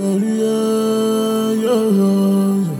yeah, yeah, yeah.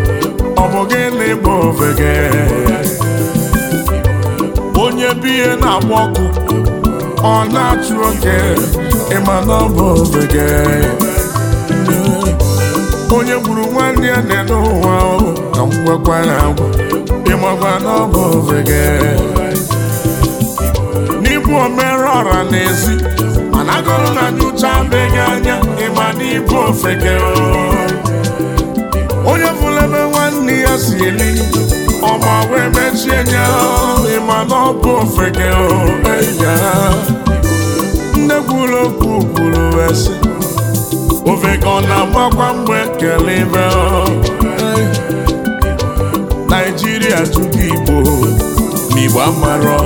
ọ bụ gịnị bụ ofeke onye bụ ihe na-agba ọkụ ọ na-achụ oke ịma na ọ bụ ofeke onye gburu nwanne ya na-ene ụwa ka m gwakwa ya agwa ịmakwa na ọ bụ ofeke n'ịbụ omere ọra n'ezi mana agụrụ na nyocha beghị anya ịma na ịbụ ofeke onye fụlebe n'ihe ya si eri ọma wee mechie nya ịma na ọ bụ ofeke ya nne kwuru okwu kwuru wee sị ofeke ọ na-agbakwa mgbe kele ibe naijiria jụgo igbo n'igbo amarọ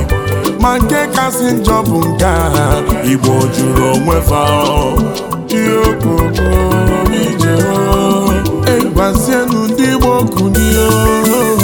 ma nke kasị njọ bụ nke a igbo jụrụ onwe fa ihe okoko ije egwazienu okwu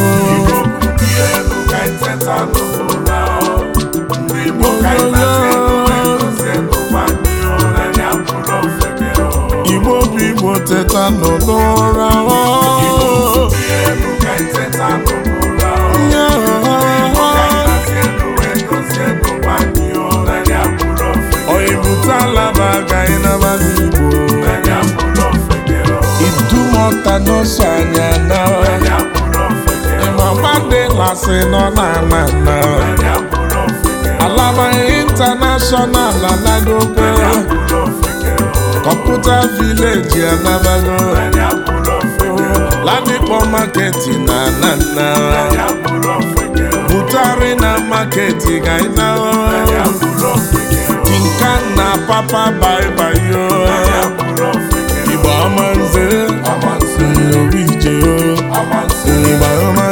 asị nọ n'ala na alaba intanashọnal anagogo kọmputa vileji anabago ladipo maketi na anana butari na maketi gaina tinka na papa baibayo igba ọma nze obi ije o igba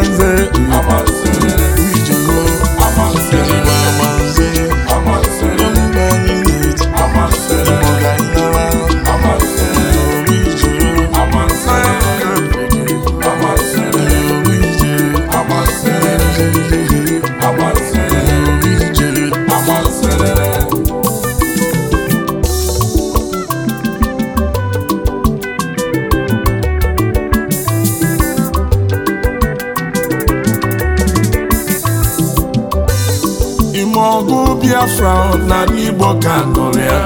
Biafra n'ala Igbo ka tụrụ ya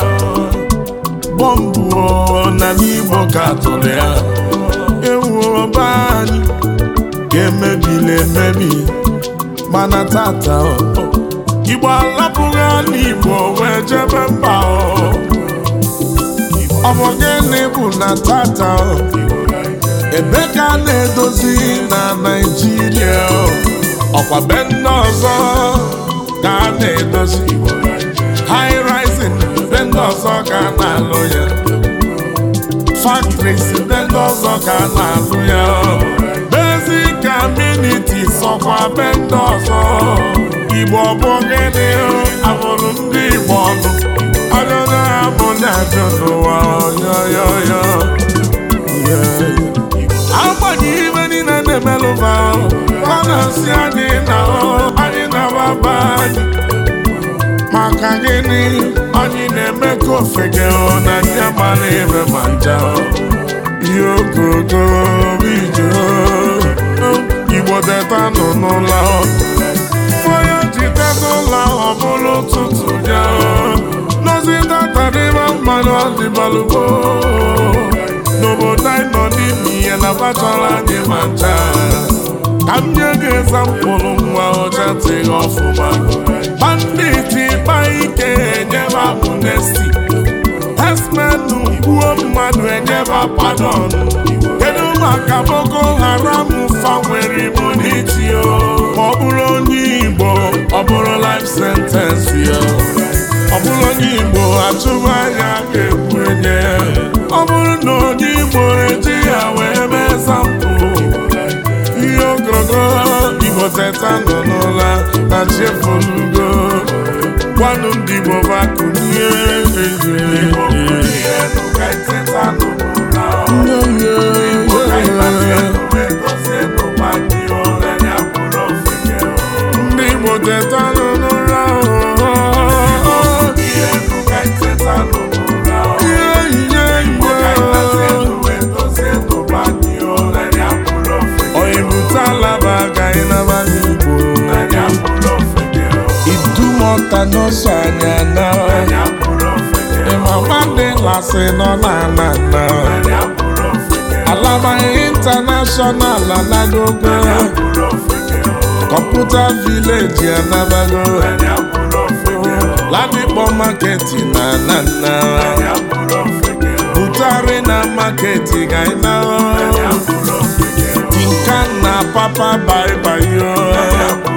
bọmbụ n'ala Igbo ka tụrụ ya ewu ọba anyị ga na emebi mana tata Igbo alapụghị ala Igbo wee jebe mba ọ bụ gịnị bụ na tata ebe ka a na-edozi na Naịjirịa ọkwa be ndị ọzọ ka a na iwu high rising be ndị ọzọ ka na-alụ ya factories be ndị ọzọ ka na-alụ ya basic sọkwa be ndị igbo bụ gịnị abụrụ ndị igbo ọnụ ajọjọ ha bụ ndị ajọ n'ụwa agbanyeghị ibe niile na ọ gịnị anyị na-eme ka ofege na ndị agbala ebe ma nja ihe ogogo ije igbo teta nọ n'ụlọ onye ji teta ụlọ ọ bụrụ ụtụtụ ya nozi tatadịba mmanụ ọdịbalụgbo n'obodo anyị nọ n'ime ihe na bachara anyị ma ncha ka m nye gị ezampụlụ nwa ọcha tịghị ọfụma banditi ịkpa ike enyeba amnesti esmenu gbuo mmadụ enyeba padon kedu maka Boko Haram fanwere ibu n'iti ya ma ọ bụrụ onye Igbo ọ bụrụ life sentence ya ọ bụrụ onye Igbo atụmanya ga-egbu enye ọ bụrụ na onye Igbo eji ya wee mee sampụ ihe ogologo Igbo teta ọnụ ndị Igbo bụ akụ n'ụzọ anyị na ịmama ndị lasị nọ n'ala na alaba intanashọnal anagogo kọmputa vileji anabago ladikpọ maketi na anana butari na maketi ga ịna tinka na papa baibayo